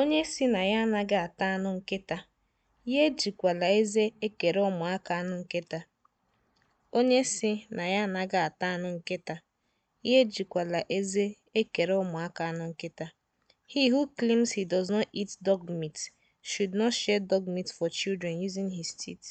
Onye sị na ya anaghị ata anụ nkịta, ya ejikwala eze ekere ụmụaka anụ nkịta. Onye sị na ya anaghị ata anụ nkịta, ya ejikwala eze ekere ụmụaka anụ nkịta. He who claims he does not eat dog meat should not share dog meat for children using his teeth.